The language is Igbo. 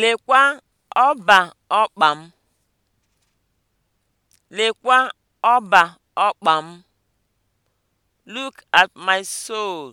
Lekwa ọba ọkpa m. Lekwa ọba ọkpa m. Look at my soul.